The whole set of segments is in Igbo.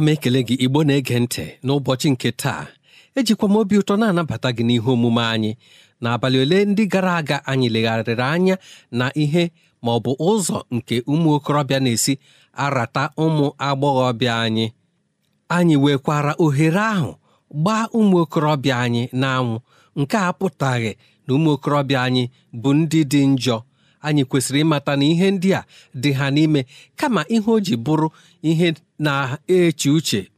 ana m ekele gị igbo na-ege ntị n'ụbọchị nke taa ejikwa m obi ụtọ na-anabata gị n'ihe omume anyị n'abalị ole ndị gara aga anyị legharịrị anya na ihe ma ọ bụ ụzọ nke ụmụ okorobịa na-esi arata ụmụ agbọghọbịa anyị anyị wekwara ohere ahụ gbaa ụmụ okorobịa anyị n'anwụ nke a apụtaghị na ụmụ okorobịa anyị bụ ndị dị njọ anyị kwesịrị ịmata na ihe ndị a dị ha n'ime kama ihe o ji bụrụ ihe na-eche uche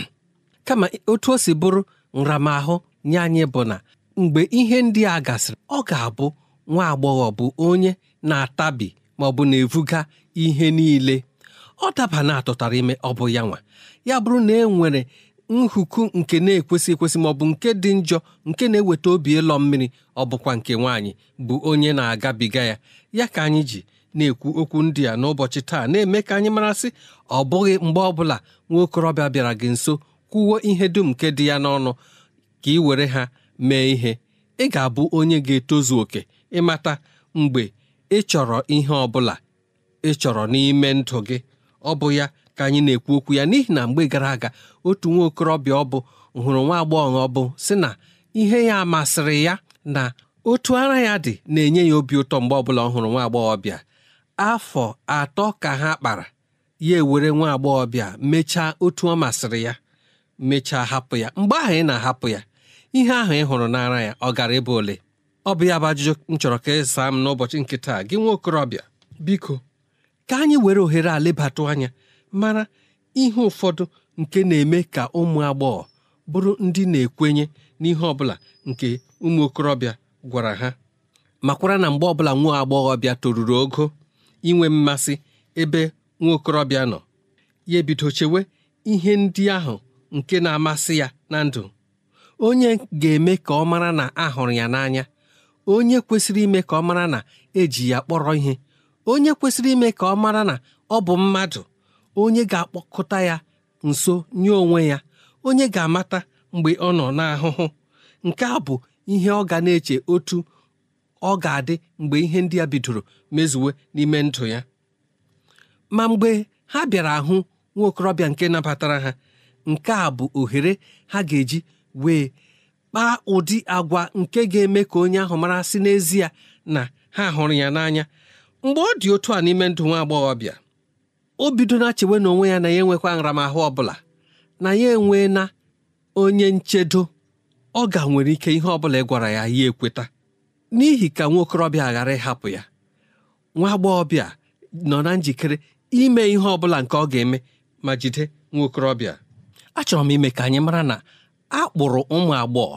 kama otu o si bụrụ nramahụ nye anyị bụ na mgbe ihe ndị a gasịrị ọ ga-abụ nwa agbọghọ bụ onye na-atabi ma ọ bụ na-evuga ihe niile ọ daba na atụtara ime ọ bụ ya nwa ya bụrụ na e nwere nhuku nke na-ekwesị ekwesị ma ọ bụ nke dị njọ nke na-eweta obi ịlọ mmiri ọ bụkwa nke nwaanyị bụ onye na-agabiga ya ya ka anyị ji na-ekwu okwu ndị a n'ụbọchị taa na-eme ka anyị marasị ọ bụghị mgbe ọbụla nwa okorobịa bịara gị nso kwuwo ihe dum nke dị ya n'ọnụ ka ị were ha mee ihe ị ga-abụ onye ga-etozu oke ịmata mgbe ị chọrọ ihe ọ bụla ị chọrọ n'ime ndụ gị ọ bụ ya ka anyị na-ekwu okwu ya n'ihi na mgbe gara aga otu nwa okorobịa ọ bụ hụrụ nwa agbọghọ ọ bụ sị na ihe ya masịrị ya na otu ara ya dị na-enye ya obi ụtọ mgbe ọbụla ọ hụrụ nwa agbọghọbịa afọ atọ ka ha kpara ya ewere nwa agbọghọbịa mechaa otu ọ masịrị ya mechaa hapụ ya mgbe ahụ ị na-ahapụ ya ihe ahụ ị hụrụ n'ara ya ọ gara ịbụ ole ọ bụ ya bụ ajụjụ m chọrọ ka ịsaa e m n'ụbọchị nkịta gị nwa okorobịa biko ka anyị were ohere a lebatụ anya mara ihe ụfọdụ nke na-eme ka ụmụ agbọghọ bụrụ ndị na-ekwenye n'ihe ọ bụla nke ụmụ okorobịa gwara ha makwara na mgbe ọbụla nwa agbọghọbịa toruru ogo inwe mmasị ebe nwa okorobịa nọ ya ebido chewe ihe ndị ahụ nke na-amasị ya na ndụ onye ga-eme ka ọ mara na a hụrụ ya n'anya onye kwesịrị ime ka ọ mara na eji ya kpọrọ ihe onye kwesịrị ime ka ọ mara na ọ bụ mmadụ onye ga-akpọkọta ya nso nye onwe ya onye ga-amata mgbe ọ nọ n'ahụhụ nke a bụ ihe ọ ga na-eche otu ọ ga-adị mgbe ihe ndị a bidoro mezuwe n'ime ndụ ya ma mgbe ha bịara ahụ nwa okorobịa nke nabatara ha nke a bụ ohere ha ga-eji wee kpaa ụdị agwa nke ga-eme ka onye ahụ mara sị n'ezie na ha hụrụ ya n'anya mgbe ọ dị otu a n'ime ndụ nwa agbọghọbịa o bido na chewe na onwe ya na ya enwekwa nramahụ ọ bụla na ya enwee na onye nchedo ọ ga nwere ike ihe ọ bụla ị gwara ya ya ekweta n'ihi ka nwa okorobịa ghara ịhapụ ya nwa agbọghọbịa nọ na njikere ime ihe ọ bụla nke ọ ga-eme ma jide nwa okorobịa achọrọ m ime ka anyị mara na a kpụrụ ụmụ agbọghọ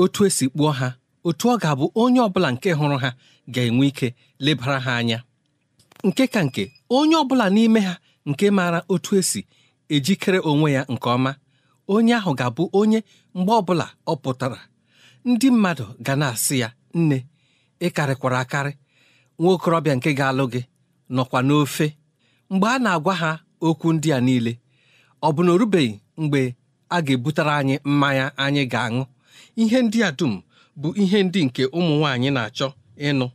otu esi kpụọ ha otu ọ ga-abụ onye ọbụla nke hụrụ ha ga-enwe ike lebara ha anya nke ka nke onye ọbụla n'ime ha nke maara otu esi ejikere onwe ya nke ọma onye ahụ ga-abụ onye mgbe ọbụla ọ pụtara ndị mmadụ ga na-asị ya nne ị karịkwara akarị nwa okorobịa nke ga-alụ gị nọkwa n'ofe mgbe a na-agwa ha okwu ndị a niile ọ bụ na o rubeghị mgbe a ga-ebutere anyị mmanya anyị ga-aṅụ ihe ndị a dum bụ ihe ndị nke ụmụ nwaanyị na-achọ ịnụ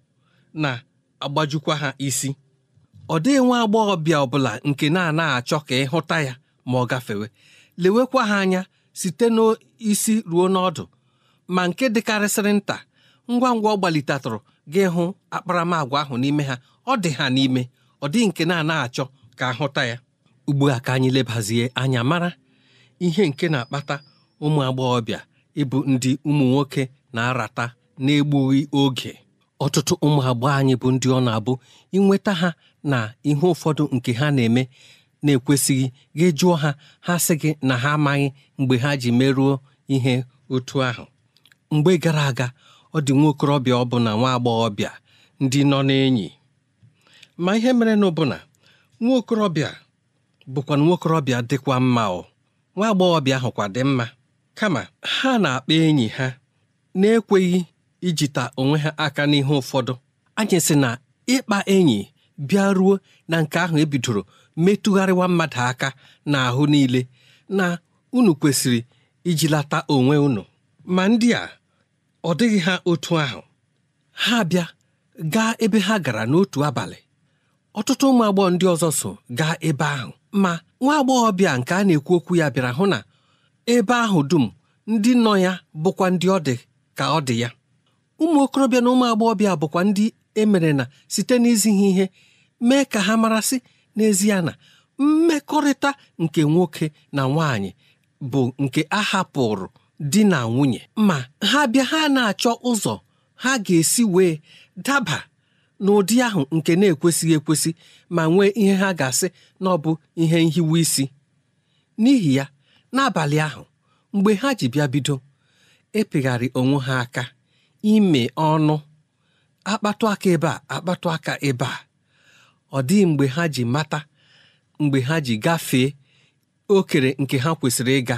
na-agbajukwa ha isi ọ dịghị nwa agbọghọbịa ọbụla nke na-anaghị achọ ka ịhụta ya ma ọ gafewe lewekwa ha anya site n'isi ruo n'ọdụ ma nke dịkarịsịrị nta ngwa ngwa ọ gbalitatụrụ gị hụ akparamagwa ahụ n'ime ha ọ dị ha n'ime ọ dịghị nke na-ana achọ ka ahụta ya ugbu a ka anyị lebazie anya mara ihe nke na-akpata ụmụ agbọghọbịa ịbụ ndị ụmụ nwoke na-arata na egbughi oge ọtụtụ ụmụ agbọghọ anyị bụ ndị ọ na-abụ inweta ha na ihe ụfọdụ nke ha na-eme na-ekwesịghị gị jụọ ha ha sị gị na ha amaghị mgbe ha ji merụọ ihe otu ahụ mgbe gara aga ọ dị nwa okorobịa ọbụna nwa agbọghọbịa ndị nọ n'enyi ma ihe mere na ọbụna nwa okorobịa bụkwa nwa okorobịa dịkwa mma ọ nwa agbọghọbịa ahụkwa dị mma kama ha na-akpa enyi ha na-ekweghị ijita onwe ha aka n'ihe ụfọdụ anyị sị na ịkpa enyi bịa ruo na nke ahụ ebidoro metụgharịwa mmadụ aka n'ahụ niile na unu kwesịrị ijilata onwe unu ma ndị a ọ dịghị ha otu ahụ ha bịa gaa ebe ha gara n'otu abalị ọtụtụ ụmụ agbọghọ ndị ọzọ so gaa ebe ahụ ma nwa bịa nke a na-ekwu okwu ya bịara hụ na ebe ahụ dum ndị nọ ya bụkwa ndị ọ dị ka ọ dị ya ụmụ okorobịa na ụmụ agbọghọbịa bụkwa ndị emere na site n'izighi ihe mee ka ha marasị n'ezie na mmekọrịta nke nwoke na nwaanyị bụ nke a hapụrụ di na nwunye ma ha bịa ha na-achọ ụzọ ha ga-esi wee daba n'ụdị ahụ nke na-ekwesịghị ekwesị ma nwee ihe ha ga-asị na ọ bụ ihe nhiwe isi n'ihi ya n'abalị ahụ mgbe ha ji bịa bido epegharị onwe ha aka ime ọnụ akpatụ aka ebe a akpatụ aka ebe a ọ dịghị mgbe ha ji mata mgbe ha ji gafee okere nke ha kwesịrị ịga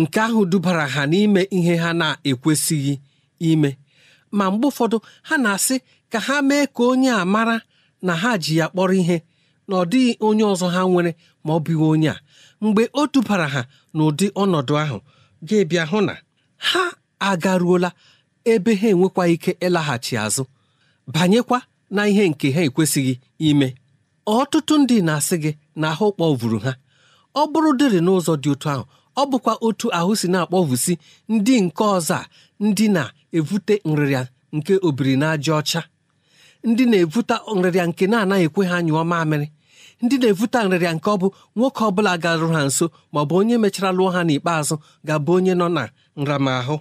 nke ahụ dubara ha n'ime ihe ha na-ekwesịghị ime ma mgbe ụfọdụ ha na-asị ka ha mee ka onye a mara na ha ji ya kpọrọ ihe na ọ dịghị onye ọzọ ha nwere ma ọ bụghị onye a mgbe o dubara ha n'ụdị ọnọdụ ahụ ga-ebịa hụ na ha agaruola ebe ha enwekwa ike ịlaghachi azụ banyekwa na ihe nke ha ekwesịghị ime ọtụtụ ndị na-asị gị na ahụ vuru ha ọ bụrụ dịrị n'ụzọ dị otu ahụ ọ bụkwa otu ahụ si na-akpọvusi ndị nke ọzọ a ndị na-evute nrịrịa nke obiri ọcha ndị na-evute nrịrịa nke na-anaghị ekwe ha nyụọ mamịrị ndị na evuta nrịrịa nke ọ bụ nwoke ọ bụla ha nso ma ọ bụ onye mechara lụọ ha n'ikpeazụ ga-abụ onye nọ na nramahụ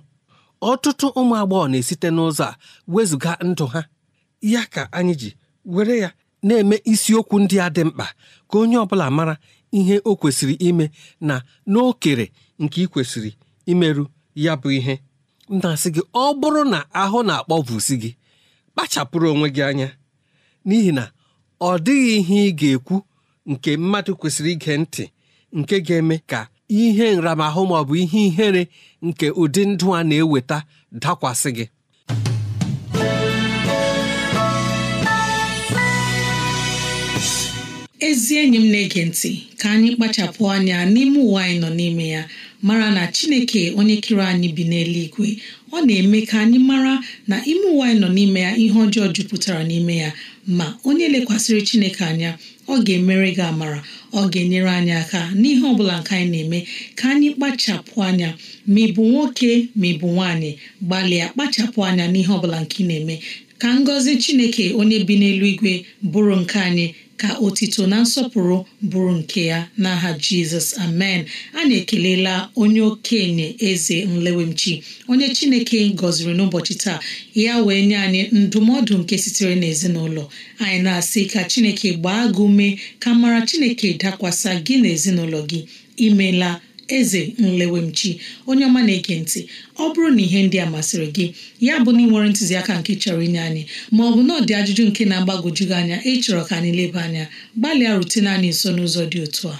ọtụtụ ụmụ agbọghọ na-esite n'ụzọ a wezụga ndụ ha ya ka anyị ji were ya na-eme isiokwu ndị a dị mkpa ka onye ọ bụla mara ihe o kwesịrị ime na n'okere nke ị kwesịrị imerụ ya bụ ihe na-asị gị ọ bụrụ na ahụ na-akpọbụsi gị kpachapụrụ onwe gị anya n'ihi na ọ dịghị ihe ị ga-ekwu nke mmadụ kwesịrị ige ntị nke ga-eme ka ihe nramahụ ma bụ ihe ihere nke ụdị ndụ a na-eweta dakwasị gị ezi enyi m na-ege ntị ka anyị kpachapụ anya n'ime ụwa anyị nọ n'ime ya mara na chineke onye kere anyị bi n'eluigwe ọ na-eme ka anyị mara na ime ụwa anyị nọ n'ime ya ihe ọjọọ jupụtara n'ime ya ma onye lekwasịrị chineke anya ọ ga-emere gị amara ọ ga-enyere anyị aka n'ihe ọ bụla nke anyị na-eme ka anyị kpachapụ anya ma ị bụ nwoke ma ị bụ nwaanyị gbalịa kpachapụ anya n'ihe ọ bụla nke ị na-eme ka ngọzi chineke onye bi n'eluigwe bụrụ nke anyị ka otito na nsọpụrụ bụrụ nke ya n'aha jizọs amen anyị ekelela onye okenye eze nlewemchi onye chineke gọziri n'ụbọchị taa ya wee nye anyị ndụmọdụ nke sitere n'ezinụlọ anyị na-asị ka chineke gbaa gị ume ka mara chineke dakwasa gị n'ezinụlọ gị imela eze nlewemchi onye ọma na-ege ntị ọ bụrụ na ihe ndị a masịrị gị ya bụ na ị nwere ntụziaka nke chọrọ inye anyị ma ọ bụ na ọ dị ajụjụ nke na-agbagwojughị anya ịchọrọ ka anyị leba anya gbalịa rutene anyị nso n'ụzọ dị otu a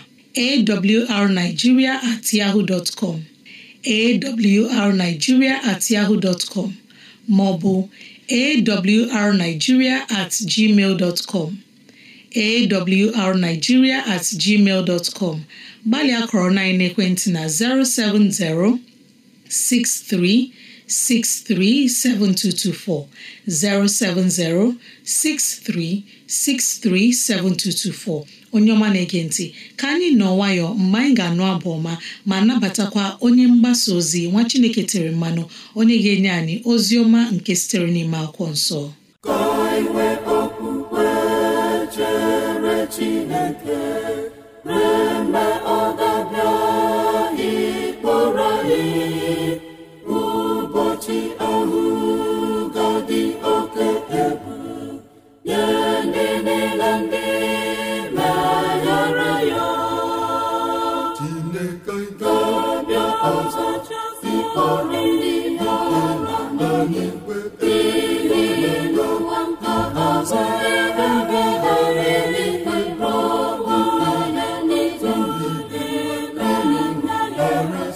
awrnigeria at yahoo dot com awrnigeria at yahoo dot com ma awrnigeria at gmail dot com awrnigeria at gmail dot com gbalịa kọrọ na ekwentị na 070 63 7224 070 63 7224 onye ọma na-ege ntị ka anyị nọ nwayọ mgbe anyị ga-anụ abụ ọma ma nabatakwa onye mgbasa ozi nwa Chineke tere mmanụ onye ga-enye anyị ozi ọma nke sitere n'ime akwụkwọ nsọ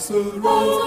soro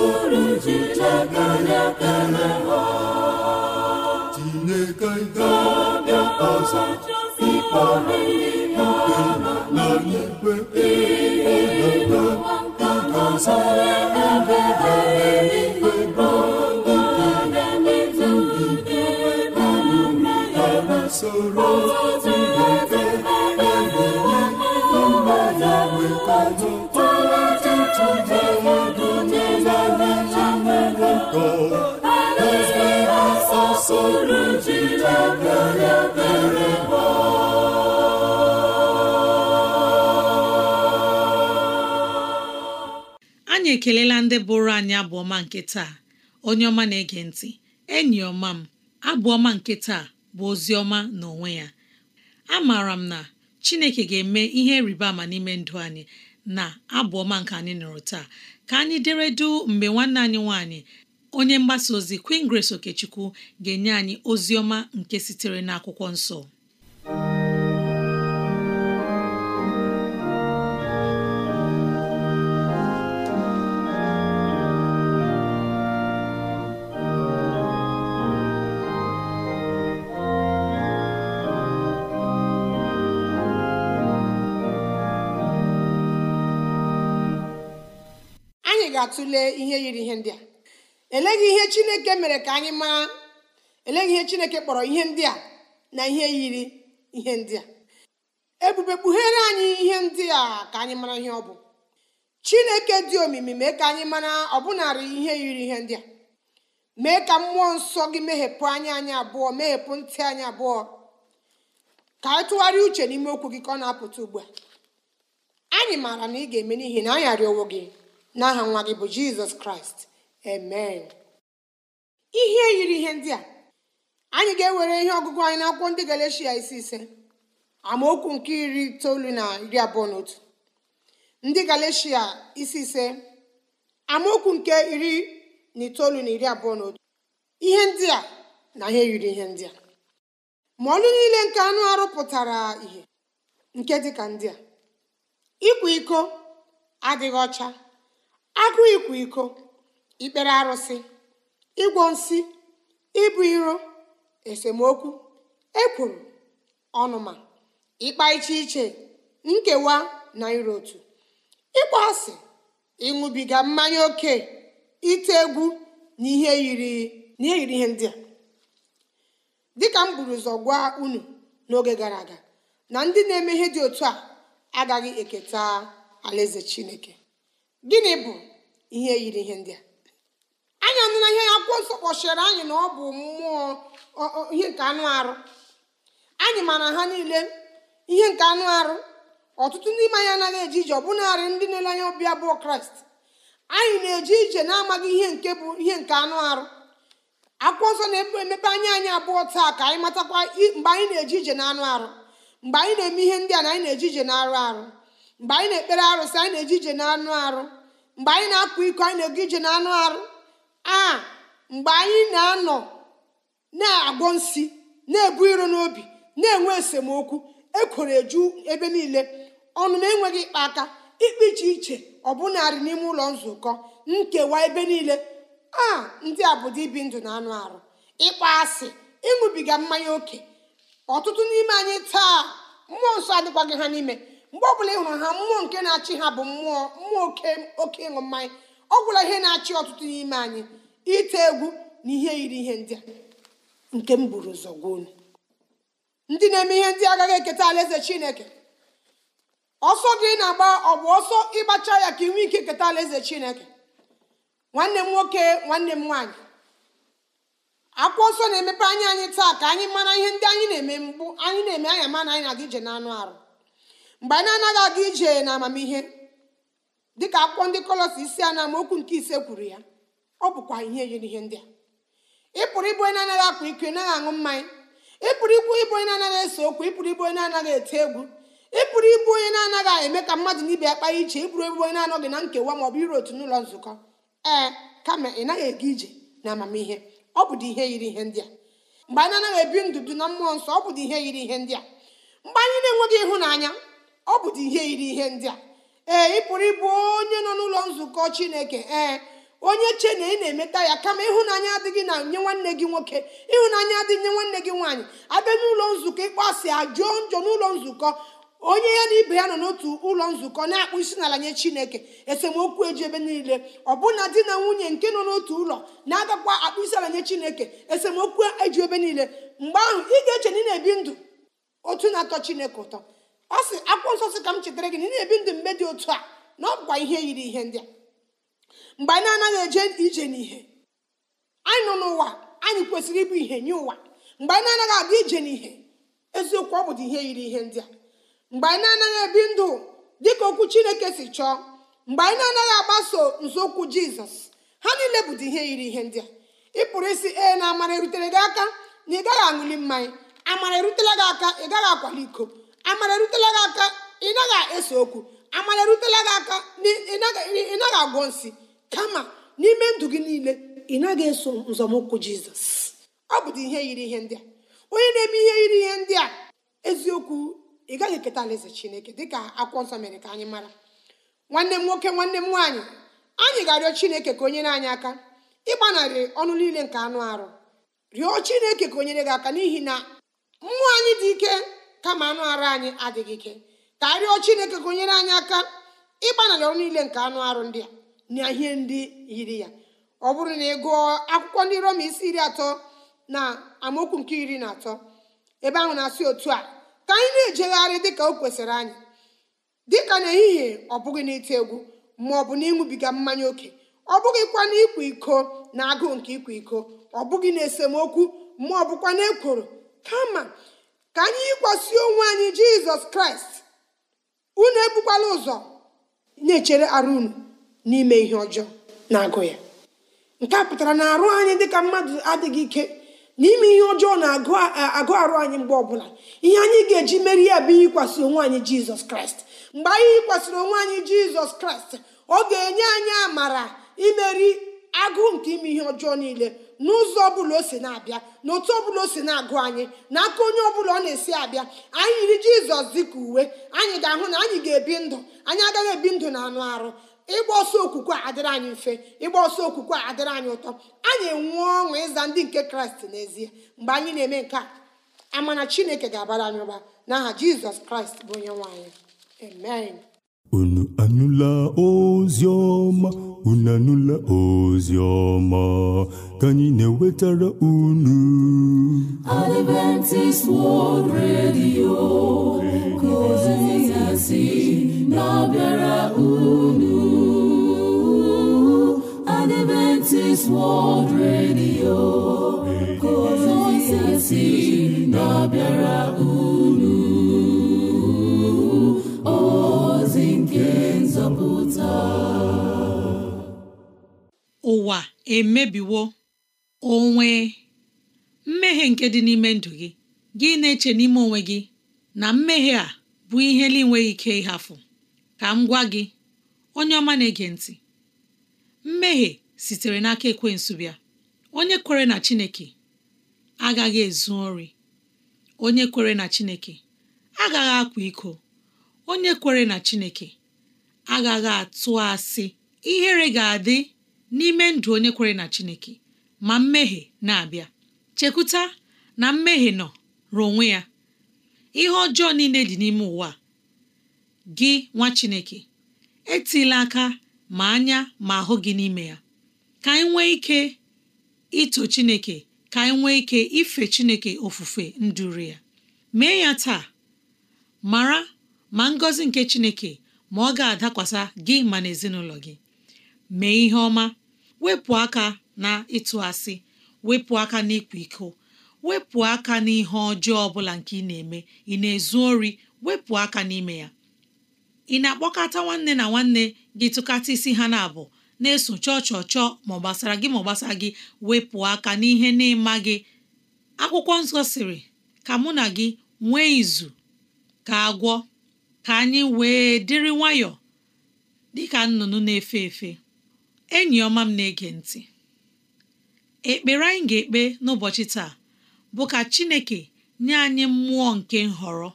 suru ji chakana kana iteghete ọbịa ọzọ ịkpọrọ ikpe na n'igwe ịhụnata anyị ekelela ndị bụrụ anyị abụọma nke taa onye ọma na-ege ntị enyi ọma m abụọma nke taa bụ ozi ọma n'onwe ya amaara m na Chineke ga-eme ihe rịba ama n'ime ndụ anyị na abụọma nke anyị nụrụ taa ka anyị dere du mgbe nwanne anyị nwanyị. onye mgbasa ozi Queen Grace Okechukwu ga-enye anyị ozi ọma nke sitere n'akwụkwọ nsọ ga-atụle ihe yiri ihe ndị a eleghị ihe chineke mere ka anyị mara eleghị ihe chineke kpọrọ ihe ndị a na ihe yiri ihe ndị a ebube kpughere anyị ihe ndị a ka anyị mara ihe ọ bụ chineke dị omimi mee ka anyị mara bụnarị ihe yiri ihe ndị a mee ka mmụọ nsọ gị meghepụ anya anyị abụọ meghepụ ntị anyị abụọ ka anyị tụgharịa uche n'ime okwu gị ka ọ na-apụta ugbu a anyị maara na ị ga-eme n'ihi na anyị arịọwo gị n'aha nwa gị bụ jizọs kraịst amen ihe yiri ihe ndị a anyị ga-ewere ihe ọgụgụ anyị na iri abụọ na otu ndị galeshia isi ise amaokwu nke iri na itoolu na iri abụọ na otu ihe ndị a na ihe yiri ihe ndị a ma ọlụ niile nke anụ arụ pụtara ihe nke dịka ndị a ịkwa iko adịghị ọcha agụ ịkwa iko ikpere arụsị ịgwọ nsị ịbụ iro esemokwu ekwuru ọnụma ịkpa iche iche nkewa na iro otu ịkpọ asị ịṅụbiga mmanya oke ite egwu na ihe yiri ihe ndị a dịka m buru ụzọ gwa unu n'oge gara aga na ndị na-eme ihe dị otu a agaghị eketa alaeze chineke gịnị bụ ihe yiri ihe ndị a anyị anụ na ihe akwụkwọ nsọ kpọchiri anyị na ọ bụ mmụọ ihe nke anụ arụ anyị mara ha niile ihe nke anụ arụ ọtụtụ ndị ime anyị anaghị eje ije ọbụnarị ndị na-ele anya ọbịa abụọ kraịst anyị na-eje ije na-amaghị ihe nke bụ ihe nke anụ arụ akwụkwọ nsọ na-emepe anya anyị abụọ taa ka anyị matakwa mgbe anyị na-eje ije na anụ arụ mgbe anyị na-eme ihe ndị a na anyị na-eje ije na arụ arụ mgbe anyị na-ekpere arụsị anyị na-eje ije na anụ arụ mgbe anyị na apụ iko anyị na-ege ije na anụ arụ a mgbe anyị na-anọ na-agwọ nsị na-ebu iro n'obi na-enwe esemokwu ekwere eju ebe niile ọnụ na enweghị ịkpa aka ikpe iche iche ọ ọbụnarị n'ime ụlọ nzukọ nkewa ebe niile a ndị a bụ dị ibi ndụ na anụ arụ ịkpa asị ịṅụbiga mmanya oke ọtụtụ n'ime anyị taa mmụọ nsọ adịkwaghị ha n'ime mgbe ọbụla ị hụrụ ha mmụọ nke na-achị ha bụ mmụọ mmụọ oke oke ịṅụ mmanya ọ gwụla ihe na-achị ọtụtụ n'ime anyị ite egwu na ihe yiri ihe ndị a nke m buru ụzọ gwa ndị na-eme ihe ndị agaghị eketa alaeze chineke ọsọ gị na-agba ọ bụ ọsọ ịgbacha ya ka ị nwee ike keta alaeze chineke nwanne m nwoke nwanne m nwaanyị akwụkwọ nsọ na-emepe anya anyị taa ka anyị mara ihe ndị anyị na-eme mgbu anyị na-eme anya ma na anyị na-adị ije anụ arụ mgbe anyị anaghị aga ije na amamihe dịka akwụkwọ ndị kọlọsi isi a na amaokwu nke ise kwuru ya ọ bụkwa ihe yiri ihe ndị a ịpụrụ ịbụ onye anaghị akpa ike naghị aṅụ mmanya ịpụrụ ikwu ịbụ onye na-anaghị ese okwu ịpụrụ ịbụ onye na-anaghị eti egwu ịpụrụ ịbụ onye na-anaghị eme ka mmadụ na ibe ya kpaa iche ịpụrụ ebụ onye na-anọghị na nkewa ma ọ bụ iru otu n'ụlọ nzukọ ee kama ị naghị aga ije na amamihe ọ bụ ihe yiri ihe ndị a mgbe anyị anaghị ebi ndụ na mmụọ nsọ ọ bụ ihe yiri ihe ndị a mgbe anyị na-enweghị ịhụnanya ọ bụdị ihe yiri ihe ndị a ee ị pụrụ ịbụ onye nọ n'ụlọ nzukọ chineke ee onye che na ị na-emeta ya kama ịhụnanya adịghị na nye nwanne gị nwoke ịhụnanya adịghị nye nwanne gị nwaanyị abịa n'ụlọ nzukọ ịkpọasị ajụọ njọ n'ụlọ nzukọ onye ya na ibe ya nọ n'otu ụlọ nzukọ na-akpụ isi n'ala nye chineke esemokwu eji ebe niile ọbụna di na nwunye nke nọ n'otu ụlọ na-agakwa akpụ isi ala nye chineke esemokwu eji ebe niile mgbe ahụ ị ga-eche na ị na-ebi ndụ otu na-atọ chineke ụtọ ọ sị akwụkwọ nsọ sị ka m chetara gị na ị na-ebi ndụ mgbe dị otu a na ọ bụkwa ihe yiri ihe ndị a mgbe anyị anaghị eje ije n'ihe anyị nọ n'ụwa anyị kwesịrị ịbụ ihe nye ụwa mgbe anyị anaghị adị ije n'ihe eziokwu ọ bụdị ihe yiri ihe ndị a mgbe anyị anaghị ebi ndụ dị ka okwu chineke si chọọ mgbe anyị na-anaghị agbaso nzọụkwụ jizọs ha niile bụdị ihe yiri ihe ndị a ị pụrụ isi ee na amara erutere gị aka na ị gaghị aṅụli mmanya amara erutela gị aka ị gaghị akwali iko amara erutela gị aka ị naghị okwu amara erutela gị aka ị naghị agwọ nsị kama n'ime ndụ gị niile ị naghị eso nzọmụkwụ jizọs ọ bụdị ihe yiri ihe ndị a onye na-eme ihe yiri ihe ndị a eziokwu ị gaghị eketa alaeze chineke dịka akwụkwọ nsọ mere ka anyị mara nwanne m nwoke nwanne m nwaanyị anyị ga-arịọ chineke ka onyere anyị aka ịgbanarị ọnụ niile nke anụ arụ rịọ chineke ka o nyere gị aka n'ihi na mmụọ anyị dị ike kama anụ arụ anyị adịghị ike ka arịọ chineke ka onyere anyị aka ịgbanarị ọrụ niile nke anụ arụ ndị a na ihe ndị yiri ya ọ bụrụ na ị gụọ akwụkwọ ndị roma isi iri atọ na amaokwu nke iri na atọ ebe ahụ na-asị otu a ka anyị na-ejegharị dịka o kwesịrị anyị dịka n'ehihie ọ bụghị n'ite egwu ma ọ bụ na ịṅụbiga mmanya oke ọ bụghị na ịkwa iko na agụụ nke ịkwa iko ọ bụghị na esemokwu ma ọ bụkwa na ekworo kama ka anyị yikwasị onwe anyị jizọs kraịst unu ebukwala ụzọ na-echere arụ unu n'ime ihe ọjọọ na-agụ ya nke a pụtara na arụ anyị dịka mmadụ adịghị ike n'ime ihe ọjọọ na-agụ arụ anyị mgbe ọbụla ihe anyị ga-eji meri ya bụ yikwasị onwe anyị jizọs kraịst mgbe anyị yikwasịrị onwe anyị jizọs kraịst ọ ga-enye anyị amara imeri agụụ nke ime ihe ọjọọ niile n'ụzọ ọbụla o si na-abịa na otu ọbụla o si na-agụ anyị n'aka onye ọbụla ọ na-esi abịa anyị yiri jizọs dịka uwe anyị ga-ahụ na anyị ga-ebi ndụ anyị agaghị ebi ndụ na anụ arụ ịgba ọsọ okwukwe a adịrị anyị mfe ịgba ọsọ okwukwe a adịrị anyị ụtọ anyị enwe ọṅụ ịza ndị nke kraịst n'ezie mgbe anyị na-eme nke a amana chineke ga-abara anyị ụba n'aha jizọs kraịst bụ onye nwe anyị amen anụla ozi ọma unu anụla ozi ka anyị na-ewetara unu Adventist World Radio ka ozi ya si na-abịa emebiwo onwe mmehie nke dị n'ime ndụ gị gị na-eche n'ime onwe gị na mmehie a bụ ihe na-enweghị ike ịhafụ ka m gwa gị onye ọma na-ege ntị mmehie sitere n'aka ekwe bịa onye kwere na Chineke agaghị ezu ori onye kwere na Chineke agaghị akwa iko onye kwere na Chineke agaghị atụ asị ihere ga-adị n'ime ndụ onye kwere na Chineke ma mmehie na-abịa chekwuta na mmehie nọ ruo onwe ya ihe ọjọọ niile dị n'ime ụwa gị nwa Chineke etila aka ma anya ma ahụ gị n'ime ya ka anyị nwee ike ito Chineke ka anyị nwee ike ife Chineke ofufe nduru ya mee ya taa mara ma ngọzi nke Chineke ma ọ ga-adakwasa gị ma na ezinụlọ gị mee ihe ọma wepụ aka na ịtụ asị wepụ aka na ịkwa iko wepụ aka n'ihe ọjọọ ọbụla nke ị na-eme ị na-ezu ori wepụ aka n'ime ya ị na-akpọkọta nwanne na nwanne gị tụkata isi ha na-abụ na-eso chọọ chọọ chọọ ma ọ gbasara gị ma ọ gbasara gị wepụ aka n'ihe na-ịma gị akwụkwọ nsọ sịrị ka mụ na gị nwee izu ka agwọ ka anyị wee dịrị nwayọọ dịka nnụnụ na-efe efe enyi ọma m na-ege ntị ekpere anyị ga-ekpe n'ụbọchị taa bụ ka Chineke nye anyị mmụọ nke nhọrọ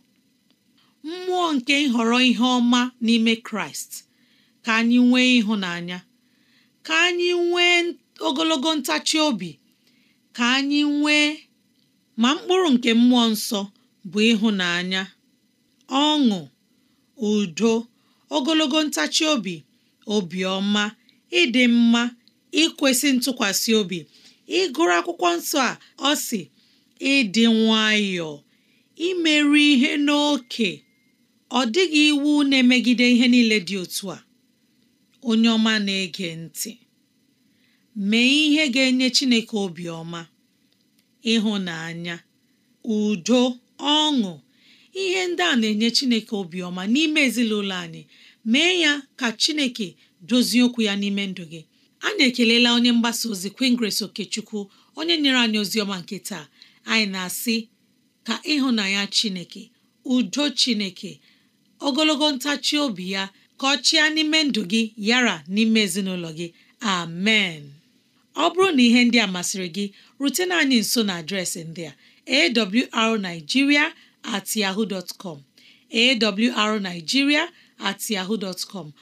mmụọ nke nhọrọ ihe ọma n'ime Kraịst ka anyị nwee ịhụnanya ka anyị nwee ogologo ntachi obi ka anyị nwee ma mkpụrụ nke mmụọ nsọ bụ ịhụnanya ọṅụ udo ogologo ntachi obi obiọma ịdị mma ikwesị ntụkwasị obi ịgụrụ akwụkwọ nsọ a ọ si ịdị nwayọọ imerụ ihe n'oke ọ dịghị iwu na-emegide ihe niile dị otu a onye ọma na-ege ntị mee ihe ga-enye Chineke obiọma ịhụnanya udo ọṅụ ihe ndị a na-enye Chineke obiọma n'ime ezinụlọ anyị mee ya ka Chineke dozie okwu ya n'ime ndụ gị anyị ekelela onye mgbasa ozi Queen Grace Okechukwu onye nyere anyị ozi ọma nke taa anyị na-asị ka ịhụnanya Chineke udo Chineke ogologo ntachi obi ya ka ọ chịa n'ime ndụ gị yara n'ime ezinụlọ gị amen ọ bụrụ na ihe ndị a masịrị gị rutena anyị nso na adreesị ndị a arigiria at com at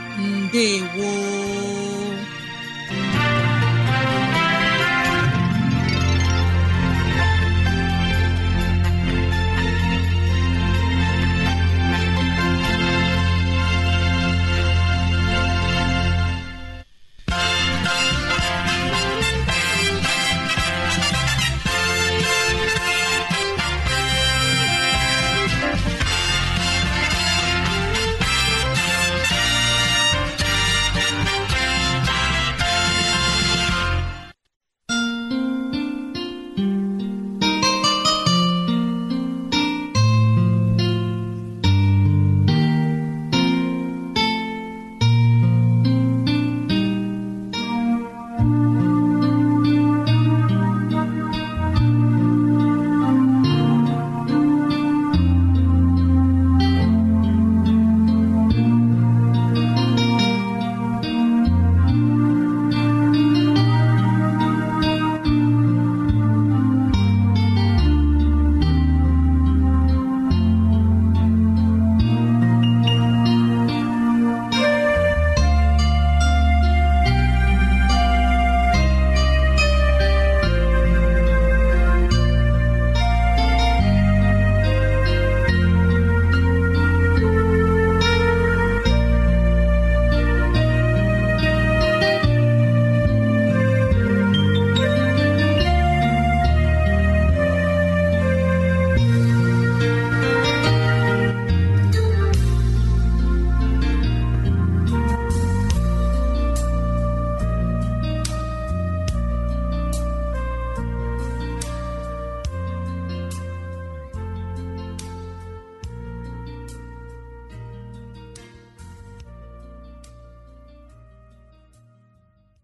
mbegwo